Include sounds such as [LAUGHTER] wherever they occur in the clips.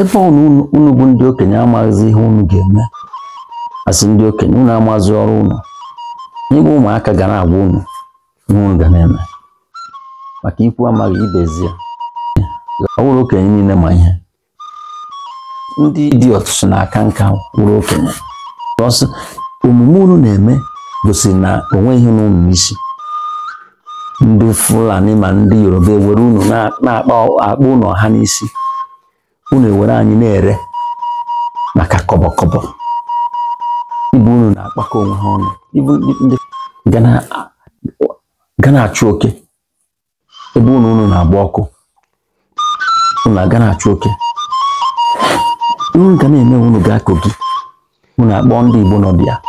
ebe unu unu bụ ndị okenye amaghịzi ihe unu ga-eme asị ndị okenye unu amazi ọrụ unu igwe ụmụaka ga na-agwa unu ihe unu ga na-eme maka ikwu amaghị ibezie ọwụrụ okenye niile ma ihe ndị dị ọtụtụ na-aka nka wụrụ okenye ọsọ omume unu na-eme gosiri na onweghị n'ụmụ isi ndị Fulani ma ndị Yoruba ewere unu na-akpa akpa ụlọ ha n'isi unu ewere anyị na-ere maka kọbọkọbọ ibu unu na-akpakọ onwe ha ọnụ ndị ga na-achụ oke ebe unu unu na-agba ọkụ unu aga na-achụ oke unu ga na-eme unu akpọ ndị Igbo nọ ha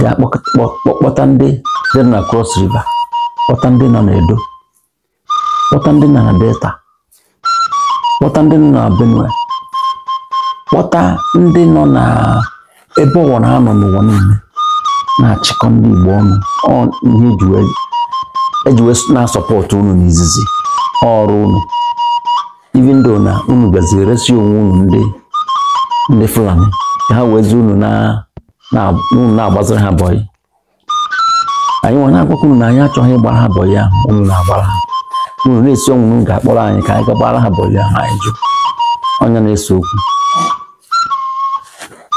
ga-akpọkpọta ndị dị na Cross River kpọta ndị nọ na kpọta ndị nọ na Delta kpọta ndị nọ na benue kpọta ndị nọ na ebe ọwara ha nọ n'ụwa niile na-achịkọ ndị igbo ọnụ ihe ejiwe e na-asọpọtụ unu n'izizi ọrụ unu even though na unu gaziri resi onwe unu ndị ndị fulani ha wezi unu na-agbaziri ha bọyị anyị nwere akwụkwọ unu na anyị achọghị ịgbara ha bọyị ahụ unu na-agbara ha ụlọ esi ọnwụ ga-akpọrọ anyị ka anyị ga gbara ha bọlị ahụ anyị jụ Onye na-ese okwu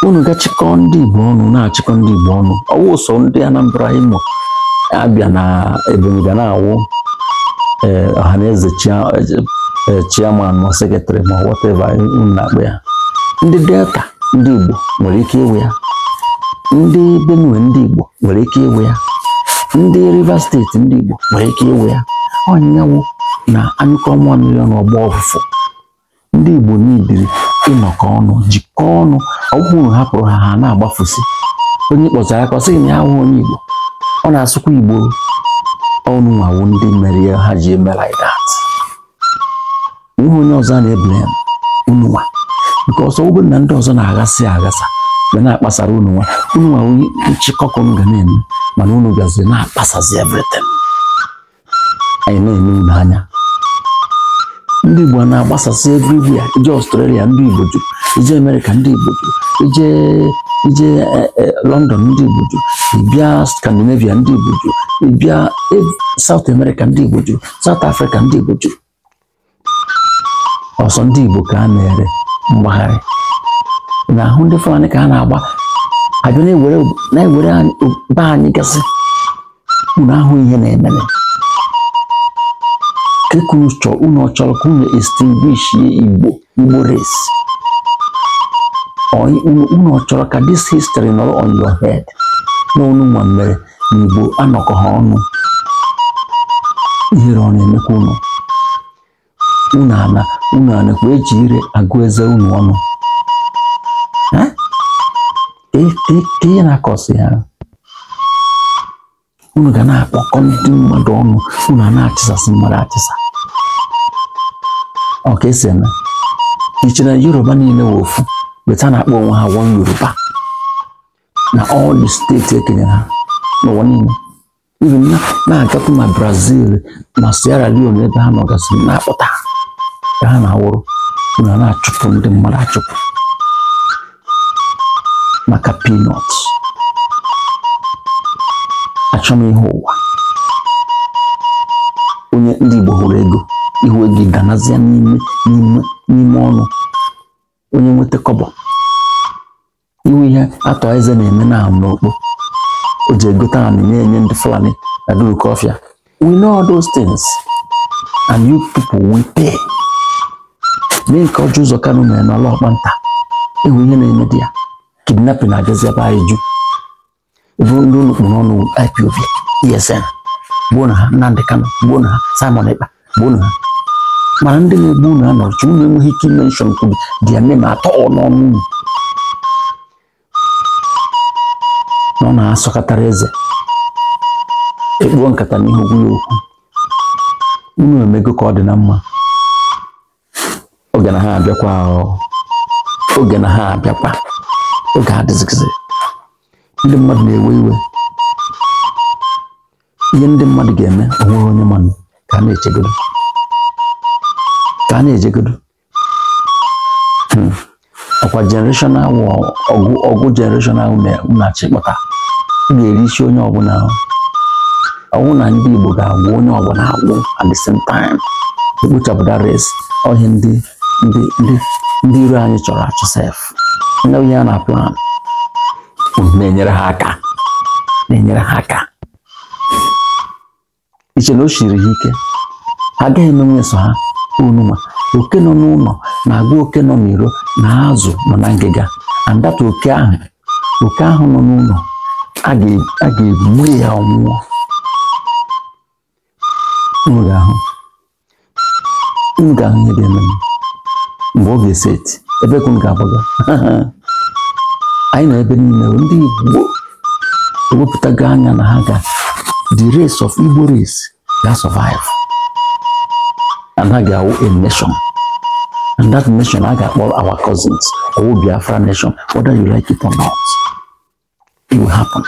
unu gachịkọ ndị igbo ọnụ na-achịkọ ndị igbo ọnụ ọwụ ụsọ ndị anambra imo abịa na ebonyi ga na-awụ eh, ọha na eze chiaman eh, eh, ma sekretrị ma wọteva unu na-akpa ya ndị delta ndị igbo nwere ike ịwụ ya ndị benue ndị igbo nwere ike ịwụ ya ndị rivers steeti ndị igbo nwere ike ịwụ ya ọnyanwụ na anyụkọ nwa mmiri n'ọgbọ ọfụfụ ndị Igbo niile ịnọkọ ọnụ jikọọ ọnụ ọgwụrụ hapụrụ ha ha na-agbafụsị onye kpọtara aka sị na ya hụ onye Igbo ọ na-asụkwa Igbo ọnụ nwawo ndị mere ya ha ji eme ihe onye ọzọ na-ebele ununwa nke ọsọ ụbụ na ndị ọzọ na-aghasị aghasa ga na-akpasara ununwa ununwa onye nchịkọkọ m ga na-eme mana unu gazi na-akpasazi everything anyị na-eme unu anya ndị Igbo na-agbasasị ebe ya ije Ọstrelia ndị Igbo juru ije Amerịka ndị Igbo juru ije ije eh, eh, London ndị Igbo juru ịbịa Scandinavia ndị Igbo juru ịbịa South America ndị Igbo juru South Africa ndị Igbo juru ọsọ ndị Igbo ka a na-ere mgbagharị na ahụ ndị Fulani ka a na-agba abịa na-ewere be anyị gasị unu ahụ ihe na-emere unu chọrọ ka unu extinguishie igbo igbo race unu chọrọ ka dis histri nọrọ on your hed. na nwa mere na igbo e, e, e anọkọ ha ọnụ ihere ọ na-emekwa unu unu ana unu anakwa eji ire agụ eze unu ọnụ ka ihe na akọsi ha unu ga na-akpọkọ ndị mmadụ ọnụ unu a na-achịsasị mmadụ achịsa Ọka esi eme iche na yoruba niile wee ofu weta na-akpọ onwe ha wọn yoruba na all steeti ekenyere ha n'ụwa niile ibi na-agakwu ma brazil ma sierra leone ebe ha nọgasịrị na-akpọta ha ka ha na-awụrụ na na-achụpụ ndị mmadụ achụpụ maka pinọt ihe ụwa onye ndị igbo hụrụ ego iwe gị ganazie n'ime n'ime ọnụ onye nweta kọbọ iwe ihe atọ eze na-eme na n'okpo o ji egote anị na-enye ndị fulani na gurukofia we know all those things and you people we pay mee nke ọjọ ụzọ kanụ na mere n'ọla nta ewu ihe na-eme dị ya kidnapping agazi ebe anyị ju ebe ndị ụlọ kpụrụ ọnụ IPOB ESN gbuo na ha Nnamdi Kanu gbuo na ha Simon Ekpa gbuo na ha mana ndị na-egbu unu anọchi unu enweghị ike imenshọn kwuru dị ya nne m atọ n'ọnụ unu na ọ na-asọkọtara eze ekpuo nkata na n'ihu gwụrụ okwu unu emego ka ọ dị na e mma oge na ha abịakwa oge na ha abịakwa oge adịzigizi ndị mmadụ na-ewe iwe ihe ndị mmadụ ga-eme onweghị onye mmanụ ka ha na-echegoro ka a na-ejegodu hmm. ọkwa jenereshọn ahụ ọgụ ọgụ jenereshọn ahụ na-achị kpọta ga-eri isi onye ọbụla ọnwụ na ndị Igbo ga-agwụ onye ọbụla agwụ at the same time ekpochapụta res ọhịa ndị ndị ndị ndị iro anyị chọrọ achọ sef ndị onye a na plan na-enyere ha aka na-enyere ha aka iche na o siri ha ike ha agaghị emenwe so ha o oke nọ n'ụlọ na-agụ oke nọ n'iro na azụ nọ na ngịga andata oke ahụ oke ahụ nọ n'ụlọ a ga-egbu ya ọnwụọ unu ga-ahụ ihe ga-eme mgbe ọ ga-eseti ebe ka ga-agbaga anyị [LAUGHS] nọ ebe niile ndị Igbo ewepụtago anya na ha ga the race of Igbo race ga survive anaghị awụ a nation and that nation a ga-akpọ our cousins ọwụ Biafra nation whether you like it or not it will happen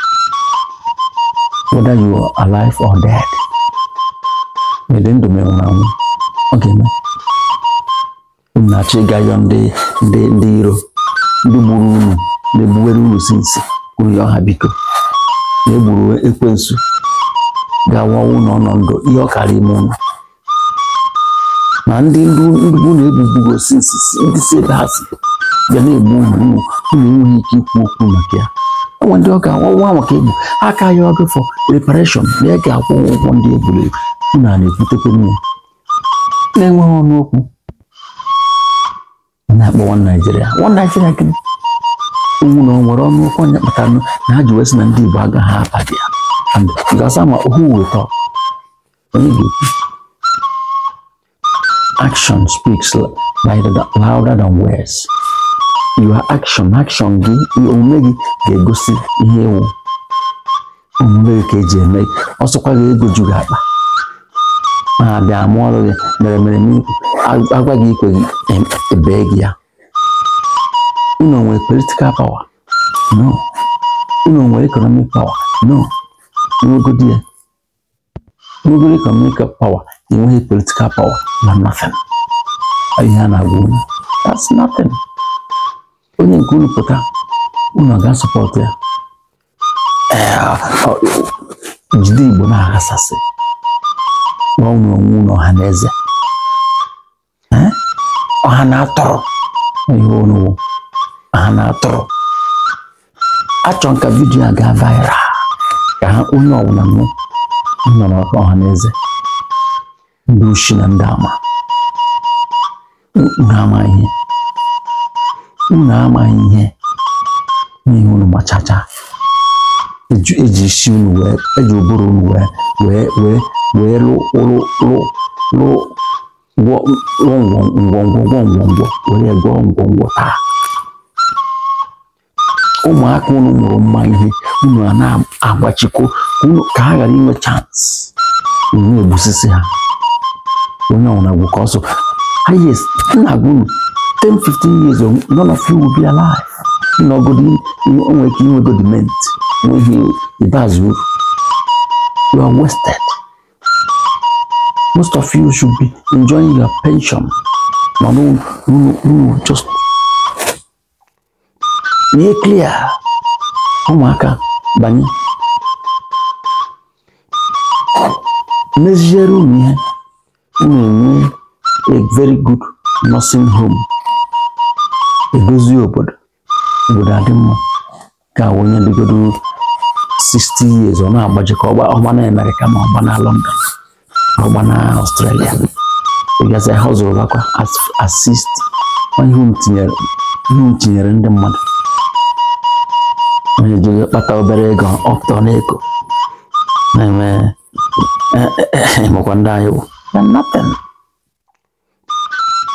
whether you are alive or dead mede ndụ m enwụrụ anwụ ọ ga-eme unu na-achọ ịga yọ ndị ndị ndị iro ndị gburu unu ndị gbuwere unu si nsi unu yọ na egburu ekwensu ga-awawu na ọnọdụ ihe ọ karịa ime unu na ndị ndịgbu na ebubugo nsisi ndị si ebe ha si ga na-egbu ụmụ unu enweghị ike ikwu okwu maka ya enwe ndị ọka ọnwa maka egbu aka ya fọ reparashọn na ya ga-akwụ ụgwọ ndị egburu egbu unu a na-ebutekwa nwa na-enweghị ọnụ okwu na-akpọ nwa naijiria nwa naijiria gịnị owu na nwere ọnụ okwu onye nụ na ha ji wee sị na ndị igbo agaghị abadị ya gasa ma ohu wetọ onye ga-ekwu action speaks louder, louder than words. Your action, action gị, omume gị ga-egosi ihe ewu omume gị ka eji eme gị, ọsọkwa ga-egoju gị akpa ma abịa amụ ọrụ gị mere mere agwa gị ikwe gị ebee gị ya. Unu nwere political power? No. Unu nwere economic power? No. Nwegodi ya. Nwegodi economic power enweghị political power na nothing ihe a na-agwa that's nothing onye nke ụlọ pụta unu ga-asọpọtụ ya jide igbo na-aghasasị gwa unu onwe unu ọha na eze ọha na-atọrọ ihe onugbu nka a viral ka ha onye ọbụla nọ ọha na eze ndị oshi na ndị ama unu ama ihe unu ama ihe n'ihi unu gbachacha eji isi unu wee eji ụbụrụ unu wee wee wee wee lụ lụ lụ lụ ngwongwo were gwọọ ngwongwo taa ụmụaka unu mụrụ mma ihe unu a na-agbachikọ ka ha ghara inwe chance unu egbusisi ha onye ọ nwụrụ ka ọ so highest nna gwuru 10 years ago none of you will be alive ịnọgodi onwe ike inwe godiment n'ihi ikpeazụ you are wasted most of you should be enjoying your pension ma n'ụlọ just nye clear ụmụaka banye meziere unu ihe na-enwe a very good nursing home edozi obodo obodo adị mma ka onye dịgodo 60 years ọ na-agbaji ka ọgba na Amerịka ma ọgba na London ọgba na Australia ịgazi ha zụrụ bakwa asist ihe m tinyere ndị mmadụ onye jiri kpata obere ego ọtọ na ego na-eme emekwa ndị anyị bụ You're nothing.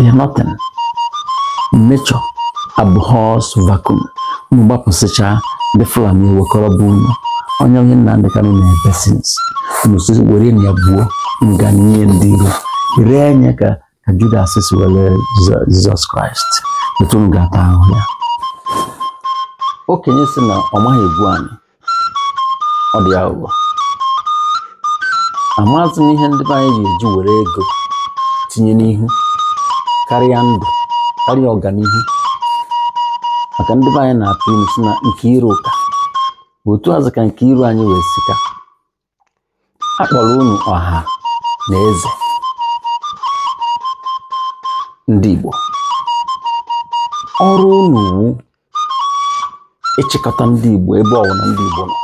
You're Vakom Nature abhors vacuum. Mgbapụsịcha ndị Fulani wekọrọ bụ onye onye Nnamdị Kanụ na-ebesins nụsị were ya buo nga nye ndị iro ree nye ka ka Judas si were Jizọs Kraịst etu m ga-ata ahụ ya okenye si na ọ maghị egwu anyị ọ dị aghụghọ amaazị m ihe ndị be anyị ga-eji were ego tinye n'ihu karịa ndụ karịa ọganihu maka ndị be anyị na-atụ ime si na nke iru ụka otu azụ ka nke iru anyị wee sika akpọrọ kpọrọ unu ọha na eze ndị Igbo ọrụ unu wu ịchịkọta ndị Igbo ebe ọwụna ndị Igbo nọ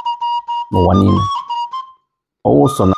n'ụwa niile ọwụ